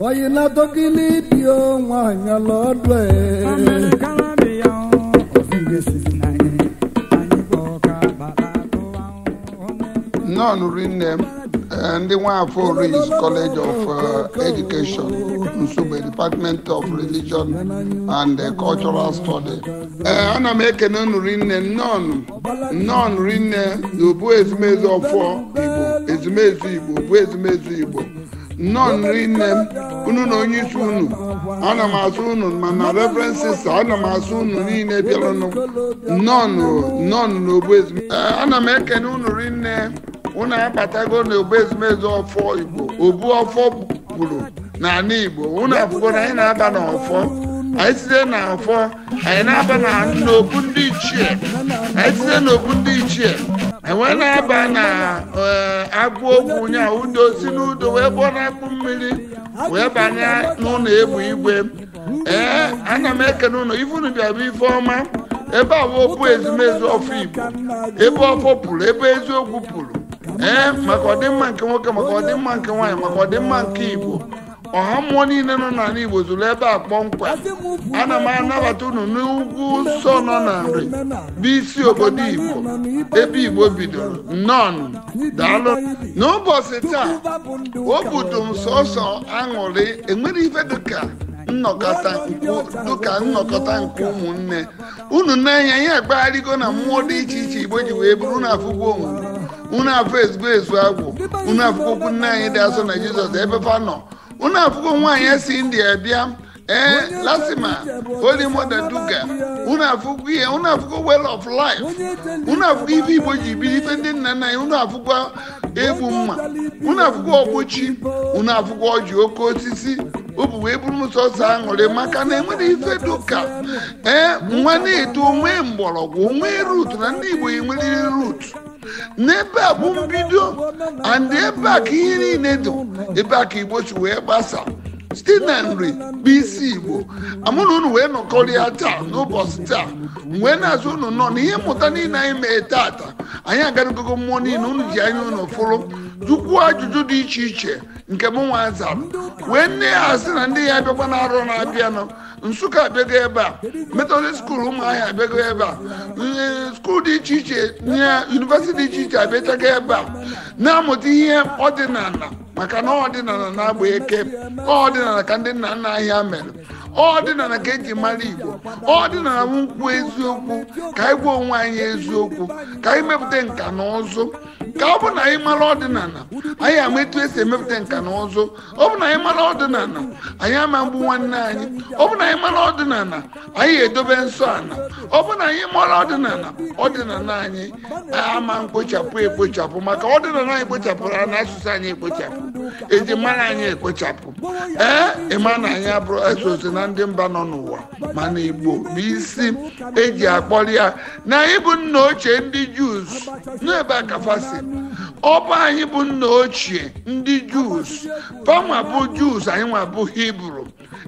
wayina dogili dio nwanyị lọdwe nọn rinne ndị nwafọ Oris College of uh, Education Nsugbe Department of Religion and uh, Cultural Study uh, ana m ekene unu rinne nọn nọn rinne bụ ezumezu ọfọ Igbo ezumezu Igbo bụ ezumezu Igbo nnọọ nri nne m unu na onye isi unu ana m asụ unu mana reverend sista ana m asụ unu niile bịaranụ nnọọ n'ogbu ezumezu eh, ana m ekene unu rinne unu abatago n'ogbu ezumezu ọfọ igbo obu ọfọ gburu n'ala igbo unu abụgo na anyị na-aba n'ọfọ anyị site n'ọfọ anyị na-aba n'obu ndị ichie anyị site n'obu ndị ichie enwe na-aba na e, agụ ogwu nya udo si n'udo wee gbọọ na-akpụ mmiri wee banye n'ụlọ egbu igwe ee ana m eke ụlọ ifunu bịabụ ife ọma ebe ezumezu ọfụ igbo ebe ọfọ pụrụ ebe eziokwu pụrụ ee maka ọdịmma nke nwoke maka ọdịmma nke nwaanyị maka ọdịmma nke igbo ọha mmụọ niile nọ n'ala Igbo zụrụ ebe a kpọmkwem ana m anabata unu n'ugwu nsọ nọ na nri bụ isi obodo Igbo ebe Igbo bidoro nọn daalụ n'ụbọchị taa obodo m sọsọ aṅụrị enwere ife dịka nnọkọta dịka nnọkọta nke ụmụnne unu n'anya ya agbagharịgo na mmụọ dị iche iche Igbo ji wee bụrụ na afụgbo onwe unu afọ ezigbo ezu agwụ unu afụkwokwu nne anyị dị asọ na Jizọs ebe fa nọ unu afụgo nwaanyị si india bịa ee eh, lasima olimoda duga unu afụgo ihe unu afụgo well of life unu afụgo ife igbo ji biri ife ndị nna nna ya unu afụgo egbu mma unu afụgo ọgbochi unu afụgo ọjị oke osisi obu wee ọsọ aṅụrị maka na enwere ife duka ee eh, nwa na-eto nwee mgbọrọgwụ nwee rut na ndị igbo enweriri rut n'ebe a bụ mbido and ebe a ka ihe niile dị ebe a ka igbo si wee gbasa site na nri bụ isi igbo amụ na unu wee nọkọrịa taa n'ụbọchị taa wee na-azụ unu nọ na ihe mmụta niile anyị mee taata anyị agarugogo mmụọ niile unu ji anya unu fụrụ jụkwuo ajụjụ dị iche iche nke m nwa zara wee nne ya na ndị ya abịakwa na arụ na-abịanụ nsụka abịago ebe a metodist skuul ụmụahịa abịago ebe a skuul dị iche iche na yunivesiti dị iche iche abịachago ebe a na-amụta ihe ọdịnala maka na ọdịnala na-agba eke ọdịnala ka ndị nna nna ahịa mere ọdịnala ka eji mara igbo ọdịnala m kwuo eziokwu ka anyị gwa onwe anyị eziokwu ka anyị mepụta nka na ụzụ ka ọ bụ na anyị mara ọdịnala anyị ama etu esi emepụta nka na ụzụ ọ bụ na anyị mara ọdịnala anyị ama mgbu nwanne anyị ọ bụ na anyị mara ọdịnala anyị edobe nsọ ala ọ bụ na anyị mara ọdịnala ọdịnala anyị ama mkpochapụ ekpochapụ maka ọdịnala anyị kpochapụrụ na asụsụ anyị ekpochapụ eji mara anyị ekpochapụ ee ịma na anyị abụrụ esoso na ndị mba nọ n'ụwa mana igbo bụ isi eji akpọrọ ya na anyị bụ nna ochie ndị juz n'ebe akafasi ọba anyị bụ nna ochie ndị jus panwa bụ jus anyị nwa bụ hibru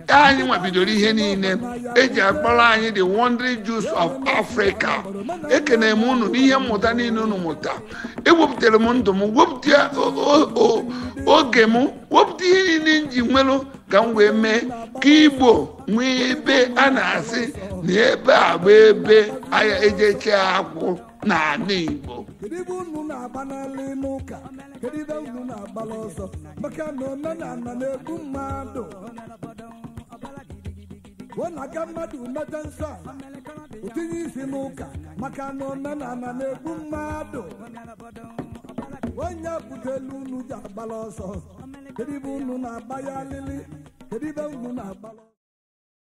e, anyị nwa bidoro ihe niile eji akpọrọ anyị the wondry jus of africa ekene m unu n'ihe mmụta niile unu mụta ewepụtara m ndụ m wepụta oge m wepụta ihe niile nji nwelụ ka m wee mee ka igbo nwee ebe a na-asị na ebe a bụ ebe ahịa eche akwụ n'ala igbo kedu ebe unu na-agba n'ala n'ụka kedu ebe unu na-agbala ọsọ maka na omenala na-egbu mmadụ pụọ na aga mmadụ meta nsọ a ụtinye isi n'ụka maka na omenala na-egbu mmadụ onye butelu unu ji agbala ọsọ kedu unu na-agba ya alili kedu unu na-agbala